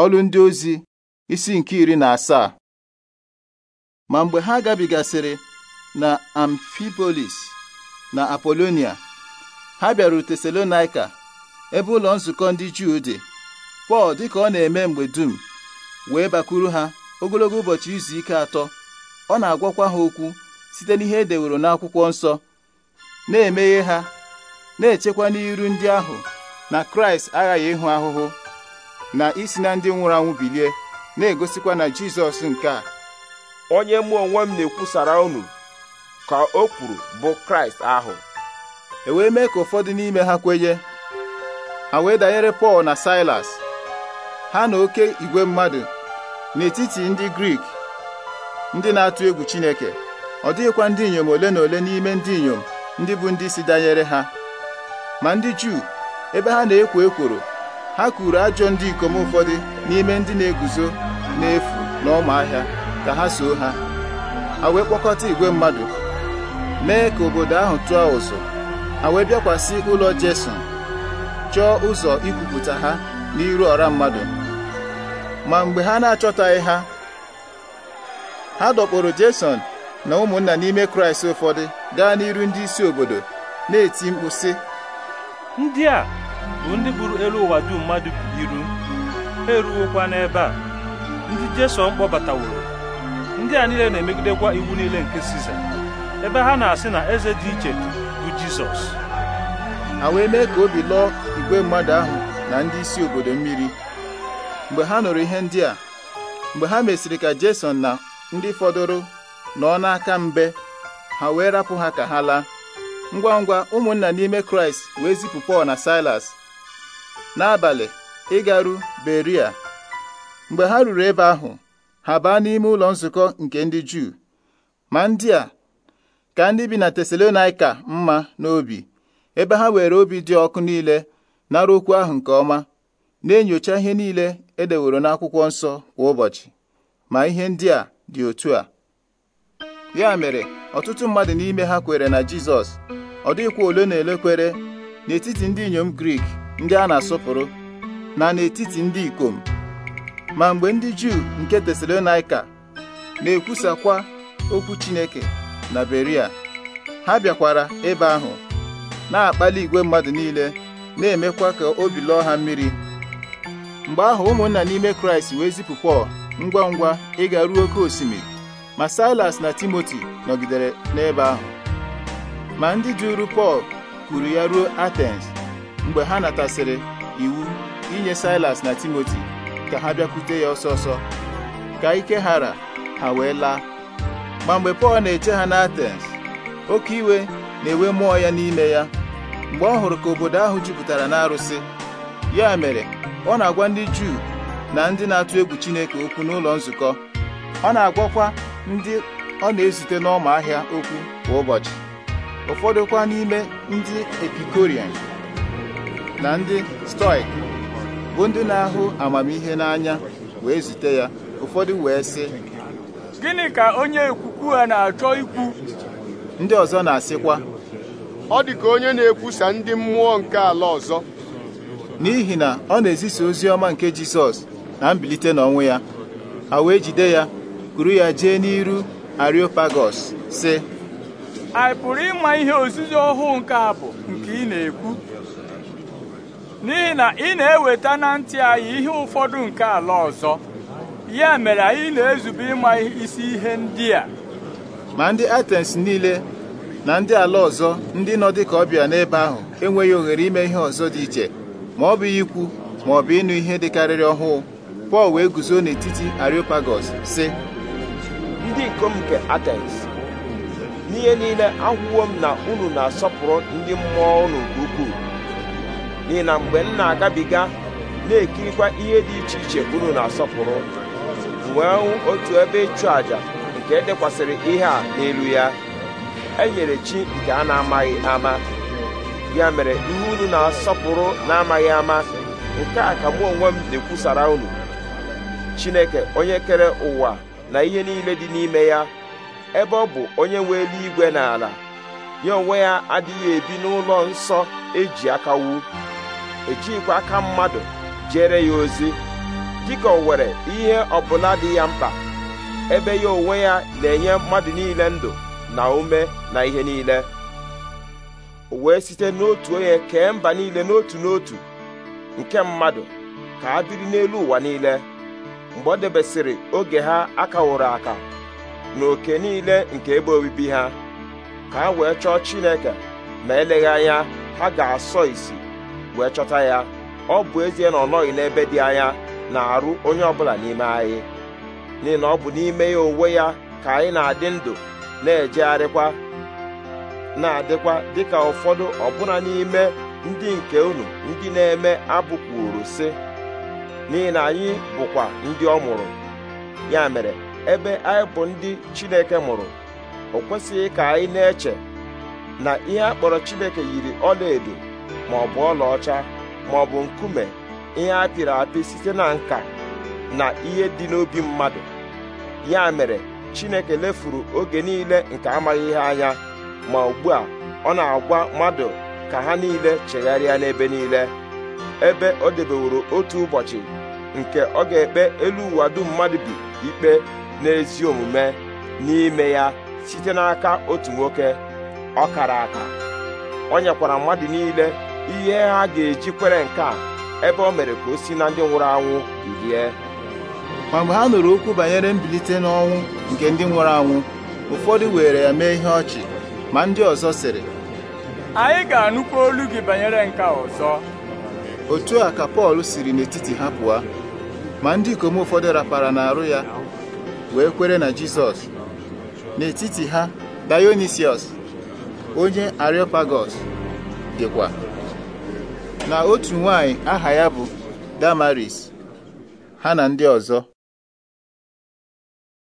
ọlụ ndị ozi isi nke iri na asaa ma mgbe ha gabigasịrị na amfibolis na apolonia ha bịara tesalonaika ebe ụlọ nzukọ ndị juu dị pọl dịka ọ na-eme mgbe dum wee bakuru ha ogologo ụbọchị izu ike atọ ọ na-agwakwa ha okwu site n'ihe e deworo n'akwụkwọ nsọ na-emeghe ha na-echekwa n'iru ndị ahụ na kraịst aghaghị ịhụ ahụhụ na isi na ndị nwụrụ anwụ bilie na-egosikwa na Jizọs nke a onye mụ onwe m na-ekwusara unu ka o kwuru bụ Kraịst ahụ e wee mee ka ụfọdụ n'ime ha kwenye ha wee danyere Pọl na Silas ha na oke igwe mmadụ n'etiti ndị Grik ndị na-atụ egwu Chineke ọ dịghịkwa ndị inyom ole na ole n'ime ndị inyom ndị bụ ndị si danyere ha ma ndị Juu ebe ha na-ekwo ekworo ha kuru ajọ ndị ikom ụfọdụ n'ime ndị na-eguzo n'efu na ahịa ka ha soo ha ha wee kpọkọta igwe mmadụ mee ka obodo ahụ tụọ ụzọ ha wee bịakwasị ụlọ Jeson chọọ ụzọ ikwupụta ha n'iru ọra mmadụ ma mgbe ha na-achọtaghị ha ha dọkpụrụ Jeson na ụmụnna n'ime Kraịst ụfọdụ gaa n'iru ndị isi obodo na-eti mkpu sị ndị a bụ ndị buru elu ụwa dum mmadụ bi iru ha eruwokwa n'ebe a ndị jeson kpọbataworo ndị a niile na-emegidekwa iwu niile nke Siza ebe ha na-asị na eze dị iche bụ Jizọs ha wee mee ka obi lụọ igwe mmadụ ahụ na ndị isi obodo mmiri mgbe ha nụrụ ihe ndị a mgbe ha mesịrị ka Jason na ndị fọdụrụ nọ n'aka mbe ha wee rapụ ha ka ha laa ngwa ngwa ụmụnna n'ime Kraịst wee zipụ Pọl na Silas n'abalị ịgaru Beria mgbe ha ruru ebe ahụ ha baa n'ime ụlọ nzukọ nke ndị Juu ma ndị a ka ndị bi na Tesalonaika mma n'obi ebe ha were obi dị ọkụ niile n'arụ okwu ahụ nke ọma na-enyocha ihe niile edeworo n'akwụkwọ nsọ kwa ụbọchị ma ihe ndị a dị otu a ya mere ọtụtụ mmadụ n'ime ha kwere na Jizọs ọ dịghịkwa ole na ele n'etiti ndị inyom Grik ndị a na-asọpụrụ na n'etiti ndị ikom ma mgbe ndị Juu nke Tesalonaika na-ekwusakwa okwu Chineke na Beria ha bịakwara ebe ahụ na-akpali igwe mmadụ niile na-emekwa ka obi lụọ ha mmiri mgbe ahụ ụmụnna n'ime Kraịst wee zipụ Pọl ngwa ngwa ịga ruo oke osimiri ma Silas na Timoti nọgidere n'ebe ahụ ma ndị jụrụ Pọl kwuru ya ruo Atens mgbe ha natasịrị iwu inye silas na timoti ka ha bịakwute ya ọsọ ọsọ ka ike ghara ha wee laa ma mgbe pọl na-eche ha n'atens oke iwe na enwe mmụọ ya n'ime ya mgbe ọ hụrụ ka obodo ahụ jupụtara n'arụsị ya mere ọ na-agwa ndị juu na ndị na-atụ egwu chineke okwu n'ụlọ nzukọ ọ na-agwakwa ndị ọ na-ezute n'ọma ahịa okwu kwa ụbọchị ụfọdụ kwa n'ime ndị epikorian na ndị stoik bụ ndị na-ahụ amamihe n'anya wee zute ya ụfọdụ wee sị gịnị ka onye ekwukwu ha na-achọ ikwu ndị ọzọ na-asịkwa ọ dị ka onye na-ekwusa ndị mmụọ nke ala ọzọ n'ihi na ọ na-ezisa ozi ọma nke Jisọs na mbilite n'ọnwụ ya ha wee jide ya kuru ya jee n'iru Areopagos sị anyị pụrụ ịma ihe ozizi ọhụụ nke a bụ nke ị na-ekwu n'ihi na ị na-eweta na ntị anyị ihe ụfọdụ nke ala ọzọ ya mere anyị na-ezube ịma isi ihe ndị a ma ndị Atens niile na ndị ala ọzọ ndị nọ dịka ọbịa n'ebe ahụ enweghị ohere ime ihe ọzọ dị iche ma ọ bụ ikwu ma ọ bụ ịnụ ihe dịkarịrị ọhụụ Pọl wee guzo n'etiti Areopagos sị ndị ikom nke Atens n'ihe niile ahụwo m na unu na-asọpụrụ ndị mmụọ ụlọ nke ukwuu n'ihi na mgbe m na-agabiga na-ekirikwa ihe dị iche iche unu na-asọpụrụ wee hụ otu ebe ịchụ àjà nke edekwasịrị ihe a n'elu ya e nyere chi nke a na-amaghị ama ya mere ihe unu na-asọpụrụ na-amaghị ama nke a ka mụ onwe m na-ekwusara unu Chineke onye kere ụwa na ihe niile dị n'ime ya ebe ọ bụ onye nwe eluigwe na ala ya onwe ya adịghị ebi n'ụlọ nsọ eji aka wu ejighịkwa aka mmadụ jere ya ozi dịka o were ihe ọbụla dị ya mkpa ebe ya onwe ya na-enye mmadụ niile ndụ na ume na ihe niile o wee site n'otu onye kee mba niile n'otu n'otu nke mmadụ ka a biri n'elu ụwa niile mgbe ọ debesịrị oge ha akawụrụ aka na oke niile nke ebe obibi ha ka ha wee chọọ Chineke ma eleghị anya ha ga-asọ isi wee chọta ya ọ bụ ezie na ọ nọghị n'ebe dị anya na-arụ onye ọbụla n'ime anyị n'ihi na ọ bụ n'ime ya onwe ya ka anyị na-adị ndụ na-ejegharịkwa na-adịkwa dịka ụfọdụ ọbụna n'ime ndị nke unu ndị na-eme abụ kwuru si. n'ihi na anyị bụkwa ndị ọ mụrụ ya mere ebe anyị bụ ndị Chineke mụrụ o kwesịghị ka anyị na-eche na ihe a kpọrọ Chineke yiri ọlaedo ma ọ bụ ọlaọcha ma ọ bụ nkume ihe a pịrị apị site na nka na ihe dị n'obi mmadụ ya mere chineke lefuru oge niile nke amaghị ihe anya ma ugbu a ọ na-agwa mmadụ ka ha niile chegharịa n'ebe niile ebe ọ debeworo otu ụbọchị nke ọ ga-ekpe elu ụwa dum mmadụ bi ikpe n'ezi omume n'ime ya site n'aka otu nwoke ọ kara aka ọ nyekwara mmadụ niile ihe ha ga-eji kwere nke a ebe o mere ka o si na ndị nwụrụ anwụ bilie ma mgbe ha nụrụ okwu banyere mbilite n'ọnwụ nke ndị nwụrụ anwụ ụfọdụ were ya mee ihe ọchị ma ndị ọzọ sịrị anyị ga-anụkwa olu gị banyere nke ọzọ otu a ka Pọl siri n'etiti ha pụọ ma ndị ikom ụfọdụ rapara n'arụ ya wee kwere na Jizọs n'etiti ha Dionisiọs onye Areopagos dịkwa na otu nwanyị aha ya bụ Damaris ha na ndị ọzọ